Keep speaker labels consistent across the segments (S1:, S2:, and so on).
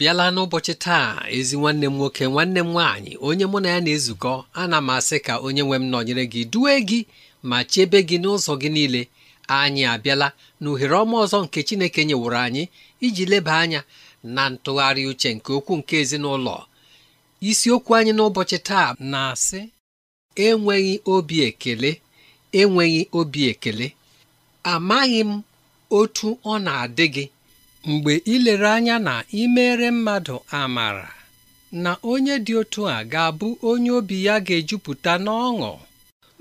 S1: bịala n'ụbọchị taa ezi nwanne m nwoke nwanne m nwaanyị onye mụ na ya na-ezukọ ana m asị ka onye nwe m nọnyere gị duwe gị ma chebe gị n'ụzọ gị niile anyị abịala na uhere ọma ọzọ nke Chineke nyeworo anyị iji leba anya na ntụgharị uche nke okwu nke ezinụlọ isiokwu anyị n'ụbọchị taa na-asị enweghị obi ekele enweghị obi ekele amaghị m otu ọ na-adị gị mgbe ilere anya na imere mmadụ amara na onye dị otu a ga-abụ onye obi ya ga-ejupụta n'ọṅụ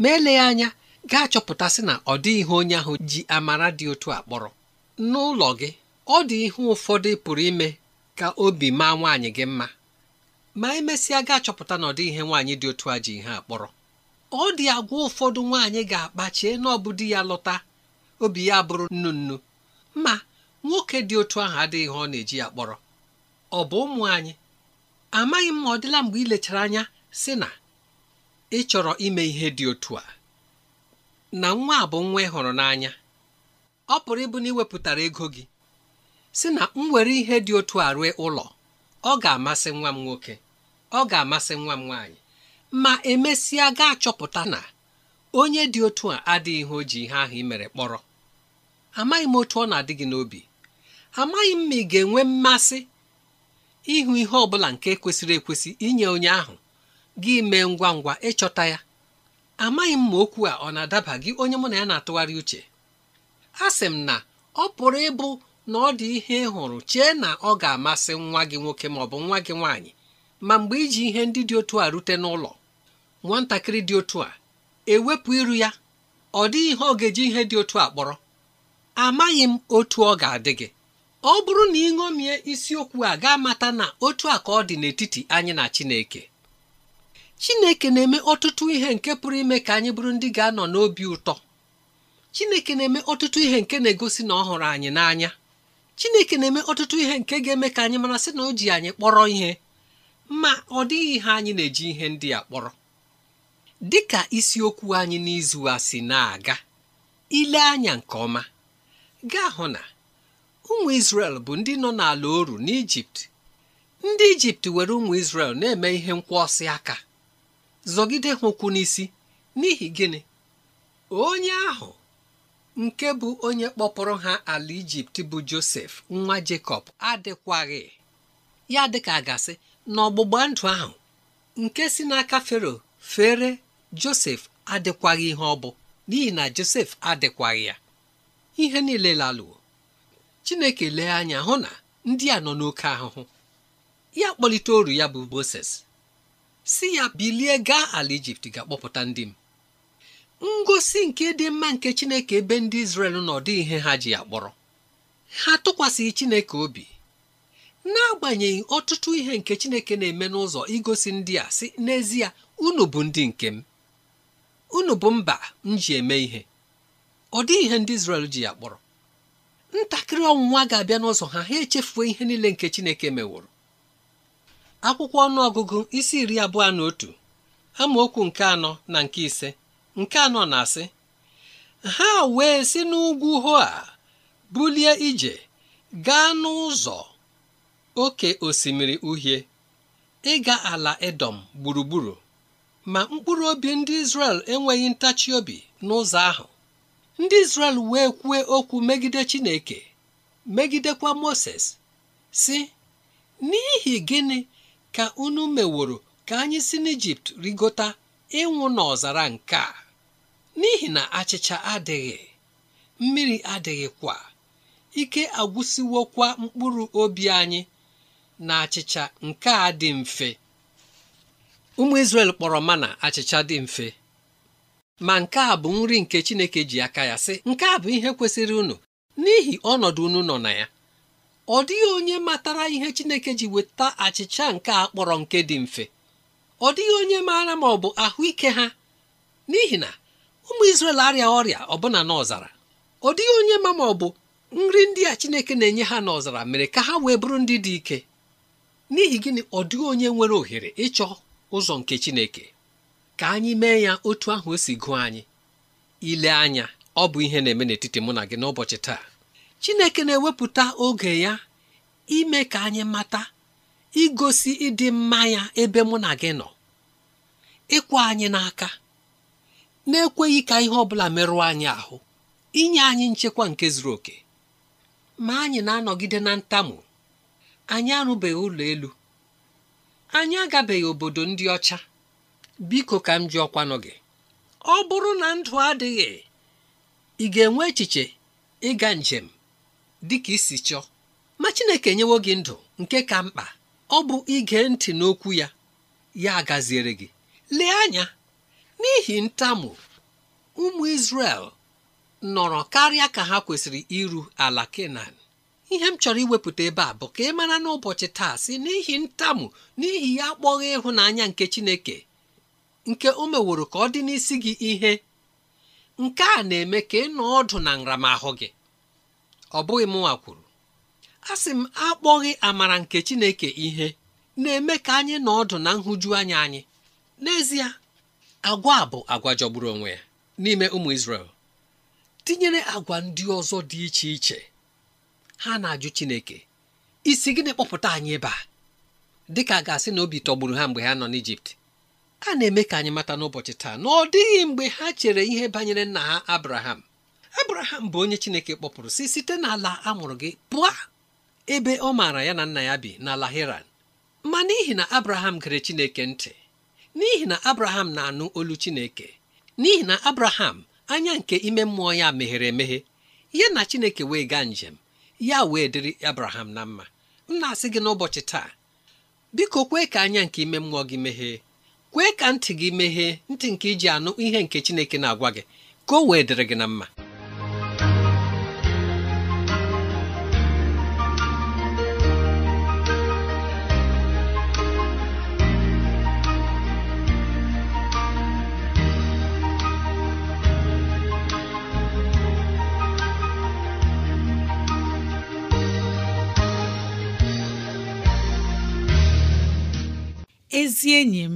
S1: ma eleghị anya gaa chọpụtasị na ọ dị ihe onye ahụ ji amara dị otu a kpọrọ n'ụlọ gị ọ dị ihe ụfọdụ pụrụ ime ka obi maa nwaanyị gị mma ma emesịa gaa chọpụta na ọ dị ihe nwaanyị dị otu a ji ihe akpọrọ ọ dị agwa ụfọdụ nwaanyị ga-akpachie na ya lọta obi ya bụrụ nnu nnu ma nwoke dị otu ahụ adịghị ihe ọ na-eji ya kpọrọ ọ bụ ụmụ anyị amaghị m ma ọ dịla mgbe ị lechara anya sị na ị chọrọ ime ihe dị otu a na nwa a bụ nwa ị hụrụ n'anya ọ pụrụ ịbụ na ị wepụtara ego gị si na m were ihe dị otu a rue ụlọ ọ ga-amasị nwa m nwoke ọ ga-amasị nwa m nwaanyị ma emesịa gaa chọpụta na onye dị otu a adịghị ihe o ji ihe ahụ i mere kpọrọ amaghị m otu ọ na-adị gị n'obi amaghị m ma ị ga-enwe mmasị ịhụ ihe ọ bụla nke kwesịrị ekwesị inye onye ahụ gị mee ngwa ngwa ịchọta ya amaghị m ma okwu a ọ na-adaba gị onye mụ na ya na-atụgharị uche a sị m na ọ pụrụ ịbụ na ọ dị ihe ịhụrụ hụrụ chee na ọ ga-amasị nwa gị nwoke ma ọ bụ nwa gị nwaanyị ma mgbe iji ihe ndị dị otu a rute n'ụlọ nwatakịrị dị otu a ewepụ iru ya ọ dịghị ihe ọ ga-eji ihe dị otu a kpọrọ amaghị m otu ọ ga-adị gị ọ bụrụ na ị ṅomie isiokwu a ga mata na otu a ka ọ dị n'etiti anyị na Chineke Chineke na-eme ọtụtụ ihe nke pụrụ ime ka anyị bụrụ ndị ga-anọ n'obi ụtọ Chineke na-eme ọtụtụ ihe nke na-egosi na ọ hụrụ anyị n'anya Chineke na-eme ọtụtụ ihe nke ga-eme ka anyị mara sị na o ji anyị kpọrọ ihe ma ọ dịghị ihe anyị na-eji ihe ndị a kpọrọ dị ka isiokwu anyị n'izu a si na-aga ile anya nke ọma gaa hụ na ụmụ isrel bụ ndị nọ n'ala oru n'Ijipt ndị Ijipt were ụmụ isrel na-eme ihe nkwụọsị aka zọgide ha n'isi n'ihi gịnị onye ahụ nke bụ onye kpọpụrụ ha ala Ijipt bụ Josef nwa Jekọb adịkwaghị ya dịka gasị na ọgbụgba ndụ ahụ nke si n'aka Fero fere Josef adịkwaghị ihe ọ bụ n'ihi na Josef adịkwaghị ya ihe niile lalụo chineke lee anya hụ na ndị a nọ n'oke ahụhụ ya kpọlite oru ya bụ moses si ya bilie gaa ala ijipt ga-akpọpụta ndị m ngosi nke dị mma nke chineke ebe ndị Izrel na dị ihe ha ji akpọrọ ha tụkwasịghị chineke obi n'agbanyeghị ọtụtụ ihe nke chineke na-eme n'ụzọ igosi ndị a si n'ezie unu bụ ndị nke m unu bụ mba m ji eme ihe ọ dịghị ihe ndị Izrel ji akpọrọ ntakịrị ọnwụnwa ga-abịa n'ụzọ ha ha echefuo ihe niile nke chineke meworo akwụkwọ ọnụ ọgụgụ isi iri abụọ na otu amaokwu nke anọ na nke ise nke anọ na-asị ha wee si n'ugwu a bulie ije gaa n'ụzọ oke osimiri uhie ịga ala edom gburugburu ma mkpụrụ obi ndị Izrel enweghị ntachi obi n'ụzọ ahụ ndị Izrel wee kwuo okwu megide Chineke megidekwa Moses si n'ihi gịnị ka unu meworo ka anyị si n'Ijipt rigota ịnwụ n'ọzara nke a n'ihi na achịcha adịghị mmiri adịghịkwa ike agwụsịwokwa mkpụrụ obi anyị na achịcha nke a dị mfe ụmụ Izrel kpọrọ mana achịcha dị mfe ma nke a bụ nri nke Chineke ji aka ya sị nke a bụ ihe kwesịrị unu n'ihi ọnọdụ unu nọ na ya ọ dịghị onye matara ihe Chineke ji weta achịcha nke a kpọrọ nke dị mfe ọ dịghị onye maara ma ọ bụ ahụike ha n'ihi na ụmụ Izrel arịa ọrịa ọbụna n'ọzara ọ dịghị onye ma ma ọ bụ nri ndị a Chineke na-enye ha n'ọzara mere ka ha wee bụrụ ndị dị ike n'ihi gịnị ọ dịghị onye nwere ohere ịchọ ụzọ nke Chineke ka anyị mee ya otu ahụ o e si gụọ anyị ile anya ọ bụ ihe na-eme n'etiti mụ na gị n'ụbọchị taa Chineke na-ewepụta oge ya ime ka anyị mata igosi ịdị mma ya ebe mụ na gị nọ ịkwa anyị n'aka na-ekweghị ka ihe ọ bụla merụọ anyị ahụ inye anyị nchekwa nke zuru oke ma anyị na-anọgide na ntamu anyị arụbeghị ụlọ elu anyị agabeghị obodo ndị ọcha biko ka m ji ọkwanụ gị ọ bụrụ na ndụ adịghị ị ga-enwe echiche ịga njem dị ka isi chọọ ma Chineke enyewo gị ndụ nke ka mkpa ọ bụ ige ntị n'okwu ya ya gaziere gị lee anya n'ihi ntamu ụmụ Izrel nọrọ karịa ka ha kwesịrị iru ala Kenan ihe m chọrọ iwepụta ebe a bụ ka ị mara n'ụbọchị taa si n'ihi ntamu n'ihi ya akpọghị ịhụnanya nke Chineke nke o meworo ka ọ dị n'isi gị ihe nke a na-eme ka ị nọ ọdụ na nramahụ gị ọ bụghị m nwa kwuru a sị m akpọghị amara nke Chineke ihe na-eme ka anyị nọ ọdụ na nhụju anya anyị n'ezie agwa a bụ agwa jọgburu onwe ya n'ime ụmụ Izrel tinyere agwa ndị ọzọ dị iche iche ha na-ajụ Chineke isi gịnị kpọpụta anyị ebe a dịka a ga-asị na obi tọgburu ha mgbe ha nọ n'Ijipt a na-eme ka anyị mata n'ụbọchị taa na ọ dịghị mgbe ha chere ihe banyere nna ha abraham abraham bụ onye chineke kpọpụrụ si site n'ala amụrụ gị pụọ ebe ọ maara ya na nna ya bi n'ala heran ma n'ihi na abraham gere chineke ntị n'ihi na abraham na-anụ olu chineke n'ihi na abraham anya nke ime mmụọ ya meghere emeghe ya na chineke wee gaa njem ya wee dịrị abraham na mma m na-asị gị n'ụbọchị taa biko kwee ka anya nke ime mmụọ gị meghee kwee ka ntị gị meghee ntị nke iji anụ ihe nke Chineke na-agwa gị ka o wee dịrị gị na mma
S2: ezi enyi m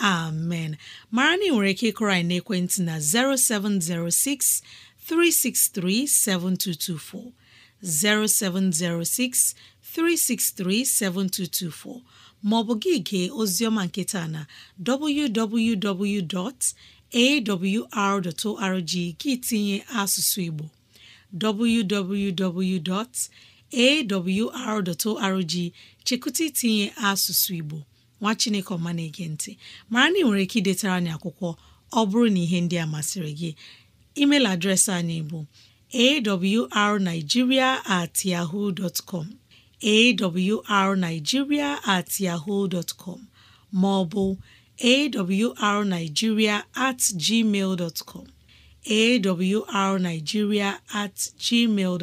S2: amen mara na nwere ike ịkụrọ anyị n'ekwentị na 0706 363 7224 0706 363 7224 maọbụ gị gee oziọma nketa na www.awr.org gị tinye asụsụ Igbo www.awr.org chekụta itinye asụsụ Igbo nwa chineke ọma na-ege ntị mara na ị nwere ike idetara anyị akwụkwọ ọ bụrụ na ihe ndị a masịrị gị email adreesị anyị bụ arigiria at arigiria at com ma ọ bụ at com at gmail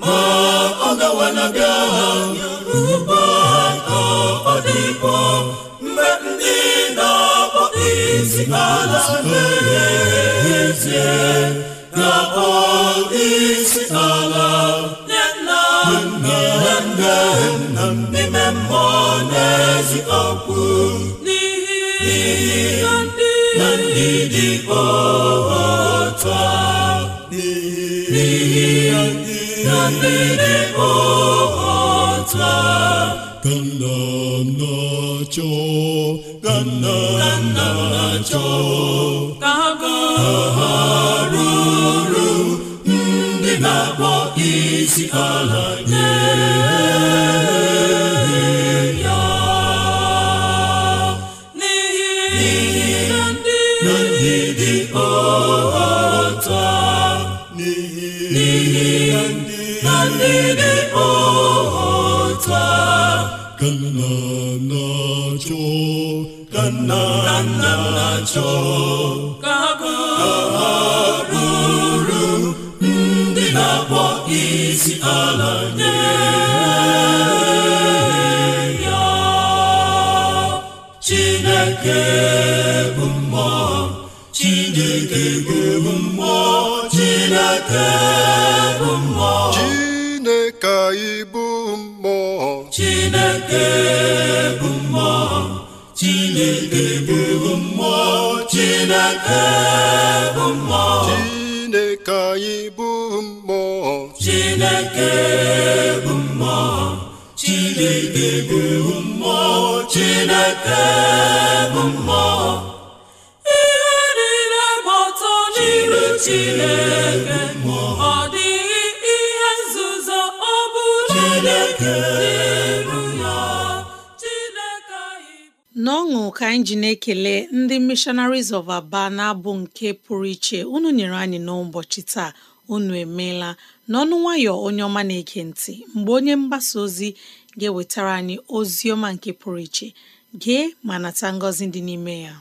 S3: ma ọ gawanaga agha yoruba ka ọ dịkwa mgbe ndị na-akpọ isi ala n'ezie na akpọ isi ala nye nna nna n'ime mmụọ n'ezi okwu n'ihi na ndị dị otu a n'ihi ndị na mmiri ọhata
S1: ka ka ka ha ruru ndị na-akpọ isi ala nye
S3: ndị dị ọta ka
S1: nna na-achọ na-achọ ka ha bụrụ ndị na-akpọ isi ala ya
S3: Chineke bụ mmụọ Chineke bụ mmụọ Chineke chineke bụ mmụọ chineke bụ mmụọ chineke bụ mmụọ chineke anyị bụ mmụọ chineke bụ mmụọ chineke
S1: bụ mmụọ chineke bụ mmụọ
S2: ihe niile gbọtọ n'iru chineke ọ dịghị ihe nzuzo ọ bụla ka anyị ji na-ekele ndị missionaries of Aba na-abụ nke pụrụ iche unu nyere anyị n'ụbọchị taa unu emeela n'ọnụ nwayọ onye ọma na-ege ntị mgbe onye mgbasa ozi ga-ewetara anyị ozi ọma nke pụrụ iche gee ma nata ngọzi dị n'ime ya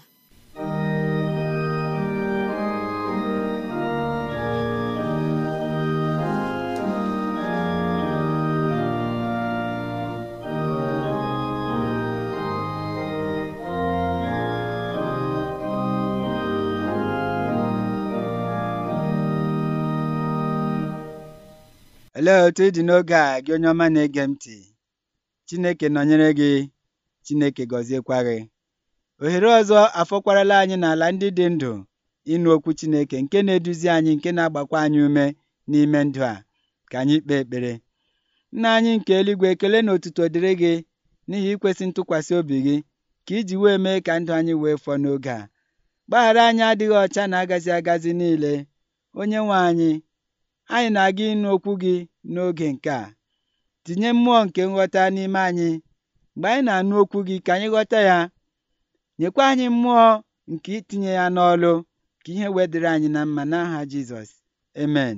S3: Olee otu ị dị n'oge a gị onye ọma na-ege m ntị? Chineke nọnyere gị, Chineke gọziekwa gị. Ohere ọzọ afọkwarala anyị n'ala ndị dị ndụ ịnụ okwu Chineke nke na-eduzi anyị nke na-agbakwa anyị ume n'ime ndụ a ka anyị kpee ekpere. Nna anyị nke eluigwe ekele na otuto dịrị gị n'ihi ikwesị ntụkwasị obi gị ka iji wee mee ka ndụ anyị wee fọọ n'oge a. Gbaghara anyị adịghị ọcha na agazi agazi niile. Onye nwe anyị anyị na-aga ịnụ okwu gị n'oge nke a tinye mmụọ nke nghọta n'ime anyị mgbe anyị na-anụ okwu gị ka anyị ghọta ya nyekwa anyị mmụọ nke itinye ya n'ọlụ ka ihe wedịrị anyị na mma n'aha Jizọs amen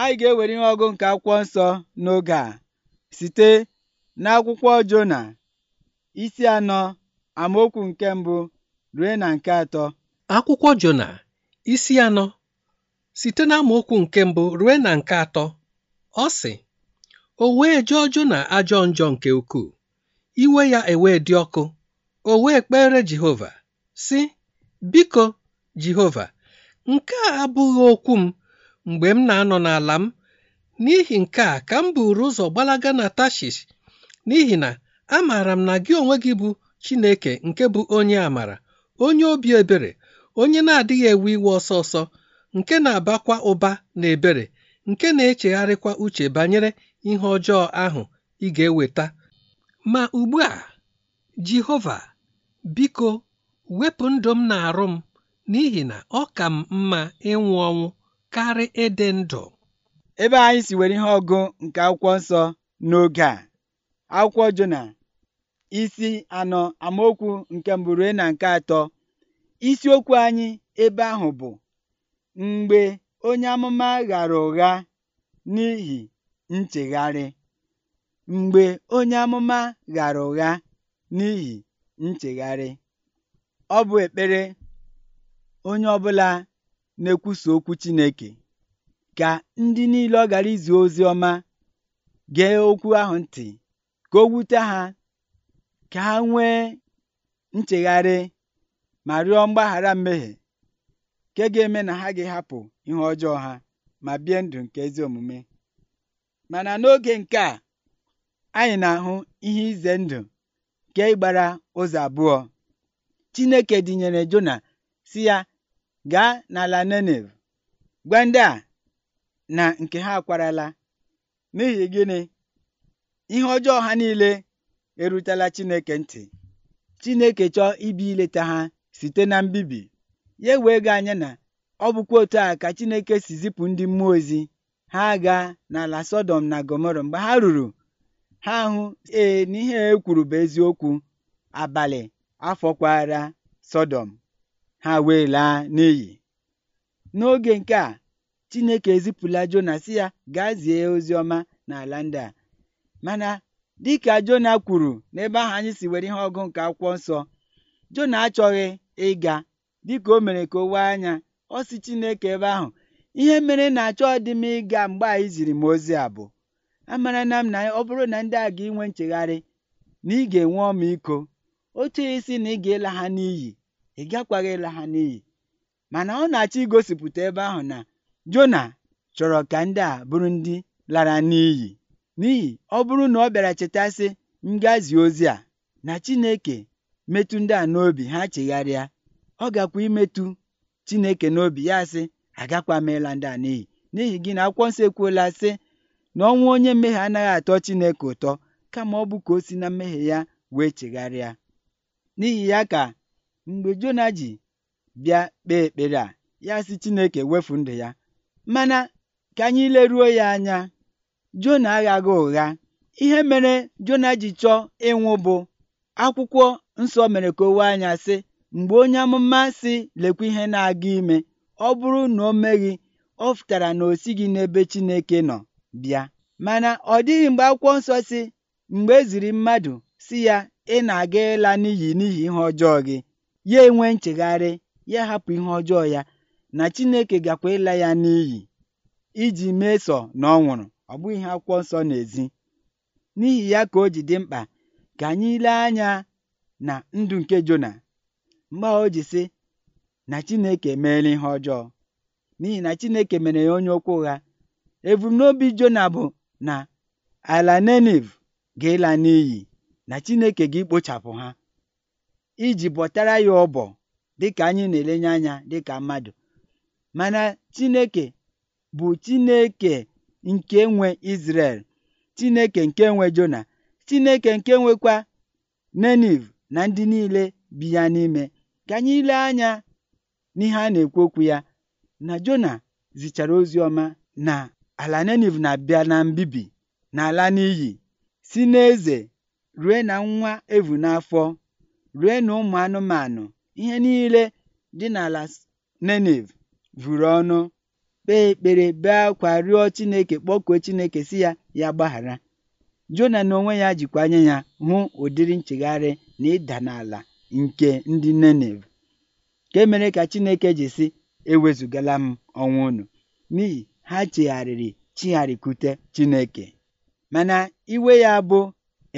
S3: anyị ga-ewere ihe ọgụ nke akwụkwọ nsọ n'oge a site n'akwụkwọ Jona isi anọ amaokwu nke mbụ rue na nke atọ akwụkwọ Jona isi anọ site okwu nke mbụ ruo na
S1: nke atọ ọ sị o wee jụọ na ajọ njọ nke ukwuu iwe ya ewee dị ọkụ o wee kpere Jehova si biko Jehova nke a abụghị okwu m mgbe m na-anọ n'ala m n'ihi nke a ka m buru ụzọ gbalaga na Tashish n'ihi na amaara m na gị onwe gị bụ Chineke nke bụ onye amara onye obi ebere onye na-adịghị ewe iwe ọsọ ọsọ nke na-abakwa ụba na ebere nke na-echegharịkwa uche banyere ihe ọjọọ ahụ ị ga-eweta ma ugbu a Jehova biko wepụ ndụ m na-arụ m
S3: n'ihi na ọ ka m mma ịnwụ ọnwụ karị ịdị ndụ ebe anyị si nwere ihe ọgụ nke akwụkwọ nsọ n'oge a akwụkwọ Jona isi anọ amaokwu nke mbụ rue na nke atọ isiokwu anyị ebe ahụ bụ mgbe onye amụma ghara ụgha n'ihi nchegharị ọ bụ ekpere onye ọbụla na-ekwusa okwu Chineke ka ndị niile ọ gara izi ozi ọma gee okwu ahụ ntị ka o wute ha ka ha nwee nchegharị ma rịọ mgbaghara mmehie nke ga-eme na ha ga hapụ ihe ọjọọ ha ma bie ndụ nke ezi omume mana n'oge nke a anyị na-ahụ ihe ize ndụ nke ịgbara ụzọ abụọ Chineke dịnyere Jona si ya gaa n'ala Nenev gwa ndị a na nke ha akwarala n'ihi gịnị ihe ọjọọ ha niile erutela Chineke ntị Chineke chọọ ibi ileta ha site na mbibi ya wee ga anya na ọ bụkwa otu a ka Chineke si zipụ ndị mmụọ ozi ha aga n'ala sodom na Gọmọrọ mgbe ha ruru ha hụ ee n'ihe e kwuru bụ eziokwu abalị afọkwara sodom ha wee laa n'iyi n'oge nke a Chineke ezipụla Jona si ya gaa zie ozi ọma n'ala ndị a mana dịka Jona kwuru n'ebe ahụ anyị si were ihe ọgụ nke akwụkwọ nsọ Jona achọghị ịga dịka o mere ka o wee anya ọ Chineke ebe ahụ ihe mere na achọ dị m ịga mgbe anyị ziri m ozi a bụ amara na m na ọ bụrụ na ndị a ga inwe nchegharị na ị ga-enwe iko otu isi na ị ga-ịla ha n'iyi ị gakwaghị ịla ha n'iyi mana ọ na-achọ igosipụta ebe ahụ na Jona chọrọ ka ndị a bụrụ ndị lara n'iyi n'ihi ọ bụrụ na ọ bịara chetasị ngazi ozi a na Chineke metụ ndị a n'obi ha chegharịa ọ gakwa imetu Chineke n'obi ya sị agakwa meela ndị a n'iyi n'ihi gị na akwụkwọ nsọ ekwuola sị na ọnwụ onye mmehie anaghị atọ Chineke ụtọ kama ọ bụ ka o si na mmehie ya wee chegharịa n'ihi ya ka mgbe Jona ji bịa kpee ekpere a ya sị Chineke wefu ndụ ya mana ka anyị leruo ya anya Jona aghaghị ụgha ihe mere Jona ji chọọ ịnwụ bụ akwụkwọ nsọ mere ka o wee anya sị Mgbe onye amụma sị lekwa ihe na-aga ime, ọ bụrụ na o meghị, ọ pụtara na o gị n'ebe Chineke nọ bịa. Mana ọ dịghị mgbe akwụkwọ nsọ si mgbe e ziri mmadụ si ya ị na-aga ịla n'ihi n'ihi ihe ọjọọ gị, ya enwe nchegharị, ya hapụ ihe ọjọọ ya na Chineke gakwa ịla ya n'iyi iji meso na ọ nwụrụ. Ọ bụghị ihe akwụkwọ nsọ na-ezi. N'ihi ya ka o ji dị mkpa ka anyị lee anya na ndụ nke Jona mgbe ahụ o ji sị na Chineke emeela ihe ọjọọ n'ihi na Chineke mere ya onye okwu ụgha ebumnobi Jona bụ na ala Neniv ga-ịla n'iyi na Chineke ga ekpochapụ ha iji bọtara ya ọbọ dịka anyị na-elenye anya dịka mmadụ mana Chineke bụ Chineke nke nwe Izrel Chineke nke nwe Jona Chineke nke nwekwa Neniv na ndị niile bi ya n'ime Ka anyị lee anya n'ihe a na-ekwu okwu ya na Jona zichara ozi ọma na ala Neniv na-abịa na mbibi na ala n'iyi si n'eze rue na nwa evu n'afọ rue na ụmụ anụmanụ ihe niile dị n'ala Neniv vụrụ ọnụ kpee ekpere bee akwa rịọ Chineke kpọkuo Chineke si ya ya gbaghara Jona na onwe ya jikwa anya ya hụ ụdịrị nchegharị na ịda n'ala nke ndị nenev nke mere ka Chineke ji sị ewezugala m ọnwụ unu n'ihi ha chegharịrị chigharịkute Chineke mana iwe ya bụ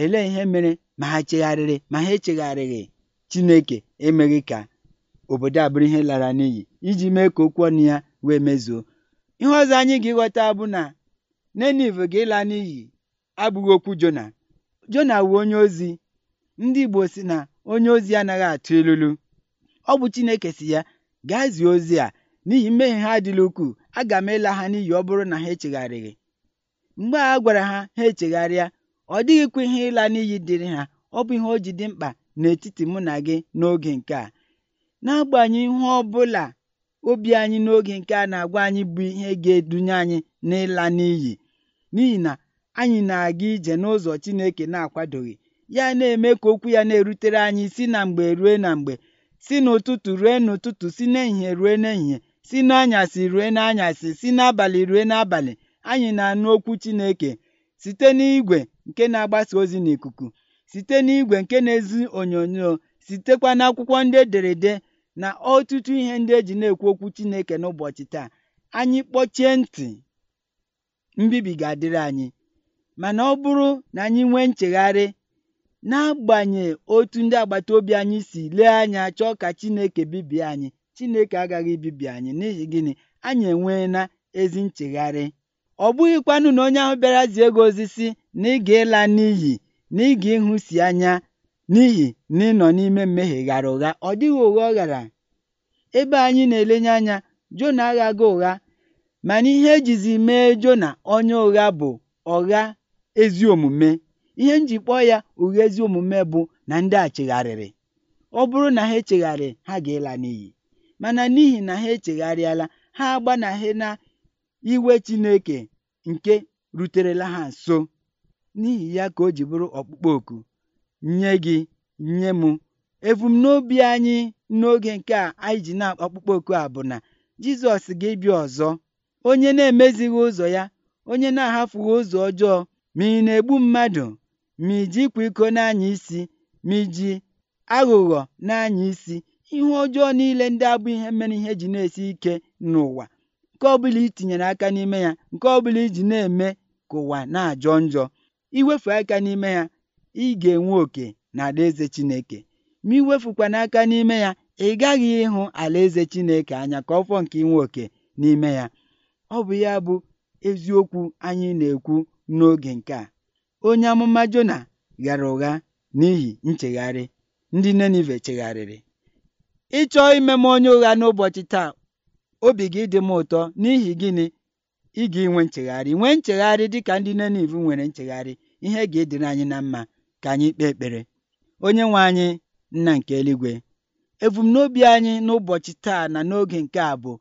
S3: elee ihe mere ma ha chegharịrị ma ha echegharịghị Chineke emeghị ka obodo a bụrụ ihe lara n'iyi iji mee ka okwu ọnụ ya wee mezuo ihe ọzọ anyị ga-ịghọta bụ na nenev ga-ịla n'iyi abụghị okwu Jona Jona wu onye ozi ndị Igbo si na onye ozi anaghị atụ ilulu ọ bụ Chineke si ya gaa zie ozi a n'ihi mmehie ha adịla ukwuu aga m ịla ha n'iyi ọ bụrụ na ha echegharịghị mgbe a gwara ha ha echegharịa ọ dịghịkwa ihe ịla n'iyi dịrị ha ọ bụ ihe o ji dị mkpa n'etiti mụ na gị n'oge nke a n'agbanyeghị ihe ọ bụla obi anyị n'oge nke a na-agwa anyị bụ ihe ga-edunye anyị n'ịla n'iyi n'ihi na anyị na-aga ije n'ụzọ Chineke na-akwadoghị ya na-eme ka okwu ya na-erutere anyị si na mgbe rue na mgbe si n'ụtụtụ rue n'ụtụtụ si n'ehihie rue n'ehihie si n'anyasị rue n'anyasị si n'abalị rue n'abalị anyị na-anụ okwu Chineke site n'igwe nke na-agbasa ozi n'ikuku site n'igwe nke na ezu onyonyo sitekwa akwụkwọ ndị ederede na ọtụtụ ihe ndị eji na-ekwu okwu Chineke n'ụbọchị taa anyị kpọchie ntị mbibi ga-adịrị anyị mana ọ bụrụ na anyị nwee nchegharị n'agbanyeghị otu ndị agbata obi anyị si lee anya chọọ ka chineke bibie anyị chineke agaghị ibibi anyị n'ihi gịnị anyị enweela ezi nchegharị. ọ bụghịkwanụ na onye ahụ bịara zie gị ozi sị nà ịla n'iyi n'ịga ị si anya n'ihi na ị nọ n'ime mmehie ghara ụgha ọ dịghị ụgha ọ ghara ebe anyị na elenye anya Jona aghaghị ụgha mana ihe ejizi mee Jona onye ụgha bụ ọgha ezi omume. ihe m ji kpọọ ya ụgha ezi omume bụ na ndị a chegharịrị ọ bụrụ na ha echegharị ha ga-ịla n'iyi mana n'ihi na ha echegharịala ha agbanaghị na iwe Chineke nke ruterela ha nso n'ihi ya ka o ji bụrụ ọkpụkpọ oku nye gị nye m ebumnobi anyị n'oge nke a anyị ji na-akpọkpụkpọ oku a bụ na Jizọs ga-ebịa ọzọ onye na-emezighị ụzọ ya onye na-ahafughị ụzọ ọjọọ ma ị na-egbu mmadụ iji ịkwa iko na-anya isi, iji aghụghọ na-anya isi ihe ọjọọ niile ndị abụ ihe mere ihe ji na-esi ike n'ụwa nke ọbụla itinyere aka n'ime ya nke ọbụla iji na-eme ka ụwa na-ajọ njọ iwefu aka n'ime ya ị ga-enwe oke na alaeze Chineke ma iwefukwana aka n'ime ya ị gaghị ịhụ alaeze Chineke anya ka ọ fọ nke inwe oke n'ime ya ọ bụ ya bụ eziokwu anyị na-ekwu n'oge nke a onye amụma Jona ghara ụgha n'ihi nchegharị ndị Ninive chegharịrị ịchọọ ime m onye ụgha n'ụbọchị taa obi gị dị m ụtọ n'ihi gịnị ị ga-enwe nchegharị nwee nchegharị dịka ndị Ninive nwere nchegharị ihe ga-edere anyị na mma ka anyị kpee ekpere onye nwe anyị nna nke eluigwe ebumnobi anyị n'ụbọchị taa na n'oge nke a bụ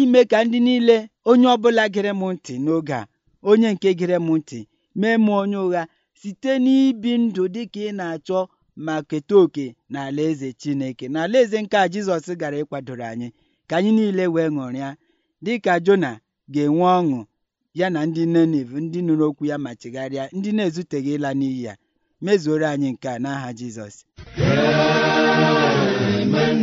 S3: ime ka ndị niile onye ọbụla gere m ntị n'oge a onye nke gere m ntị mee m onye ụgha site n'ibi ndụ dị ka ị na-achọ ma keta oke n'ala eze Chineke n'ala eze nke a Jizọs gara ịkwadoro anyị ka anyị niile wee ṅụrịa dịka Jona ga-enwe ọṅụ ya na ndị Niniv ndị nụrụ okwu ya ma chigharịa ndị na-ezuteghị ịla n'iyi ya mezuoro anyị nke a n'aha Jizọs Amen.